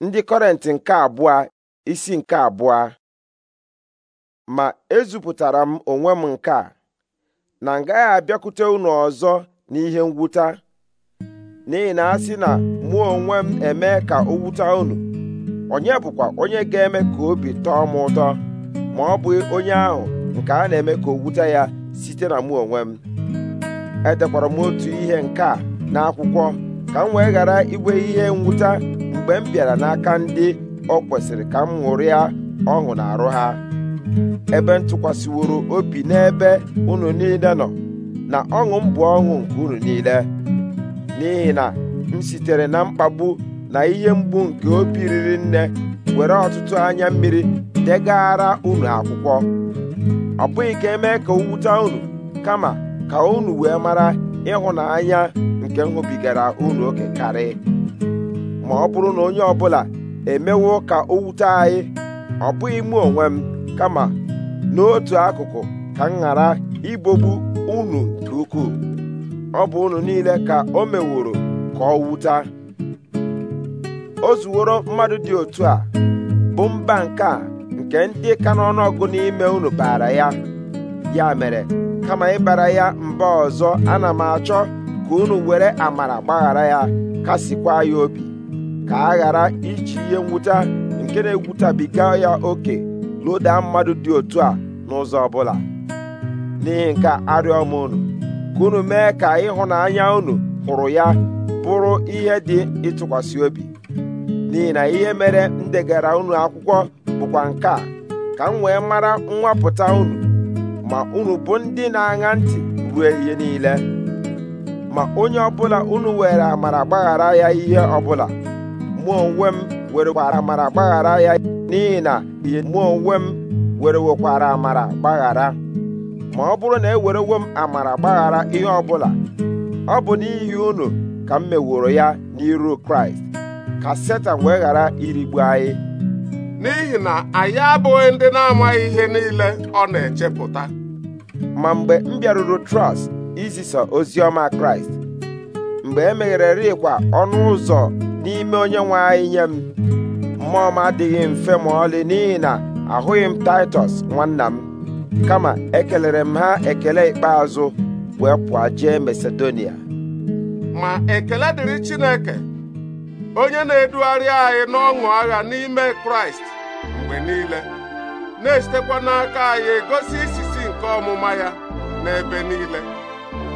ndị kọrenti nke abụọ isi nke abụọ ma ezupụtara m onwe m nke a na m gaghị abịakwute unu ọzọ n'ihe mwụta n'ihi na asị na mụ onwe m eme ka o wuta unu onye bụkwa onye ga-eme ka obi tọọ m ụtọ ma ọ bụ onye ahụ nke a na-eme ka o ya site na mụ onwe m edekwara m otu ihe nke a n'akwụkwọ ka m wee ghara igwe ihe mwụta mgbe m bịara n'aka ndị ọ kwesịrị ka m ṅụrịa ọṅụ na arụ ha ebe ntụkwasịworo obi n'ebe unu niile nọ na ọṅụ m bụ ọṅụ nke unu niile n'ihi na m sitere na mkpagbu na ihe mgbu nke obi riri nne were ọtụtụ anya mmiri degara unu akwụkwọ ọ bụghị ka emee ka owute unu kama ka unu wee mara ịhụnanya nke m unu oke karị ma ọ bụrụ na onye ọbụla emewo ka o wute anyị ọ bụghị mụ onwe m kama n'otu akụkụ ka m ghara ibogbu unu nke ukwuu ọ bụ unu niile ka o meworo ka ọ wute o zuworo mmadụ dị otu a bụ mba nke a nke ndị ka n'ọnụọgụ n'ime unu baara ya ya mere kama ịbara ya mba ọzọ ana m achọ ka unu were amara gbaghara ya kasịkwa ya obi ka a ghara iji ihe nwụta nke na-egwutabiga ya oke loda mmadụ dị otu a n'ụzọ ọbụla n'ihi nke arịọ m unu ka unu mee ka ịhụnanya unu hụrụ ya bụrụ ihe dị ịtụkwasị obi n'ihi na ihe mere ndegara unu akwụkwọ bụkwa nke a ka m wee mara nwapụta unu ma unu bụ ndị na-aṅa ntị ruo ihe niile ma onye ọbụla unu were amara gbaghara ya ihe ọbụla mụ onwe m were gbara amara gbaghara ya n'ihi na ihe mụ onwe m were wekwara amara gbaghara ma ọ bụrụ na e werewo m amara gbaghara ihe ọbụla ọ bụ n'ihi unu ka m meworo ya n'iru kraịst ka setan wee ghara irigbu anyị n'ihi na anyị abụghị ndị na-amaghị ihe niile ọ na-echepụta ma mgbe m bịaruru trọst izisa ozi ọma kraịst mgbe e meghererikwa ọnụ ụzọ n'ime onye nwe anyị nye m mmụọ m adịghị mfe ma ọlị n'ihi na ahụghị m taịtọs nwanna m kama ekelere m ha ekele ikpeazụ wee pụọ jee masedonia ma ekele dịrị chineke onye na-edugharị anyị n'ọṅụ agha n'ime kraịst mgbe niile na-esitekwa n'aka anyị gosi isisi nke ọmụma ya n'ebe niile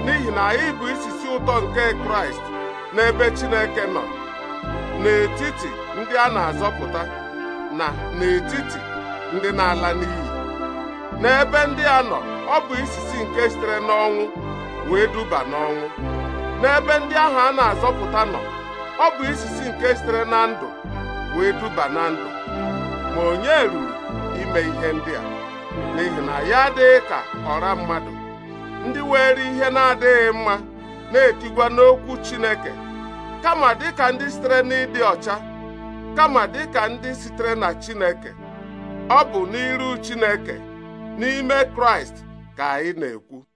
n'ihi na anyị bụ isisi ụtọ nke kraịst n'ebe chineke nọ n'etiti ndị a na-azọpụta na n'etiti ndị na-ala n'iyi n'ebe ndị a nọ ọ bụ isisi nke sitere n'ọnwụ wee duba n'ọnwụ n'ebe ndị ahụ a na-azọpụta nọ ọ bụ isisi nke sitere na ndụ wee duba na ndụ ma onye ruru ime ihe ndị a n'ihi na ya adịghị ka ọra mmadụ ndị were ihe na-adịghị mma na-etigwa n'okwu Chineke kama dịka ndị sitere n'ịdị ọcha kama dịka ndị sitere na Chineke ọ bụ n'iru Chineke n'ime Kraịst ka anyị na-ekwu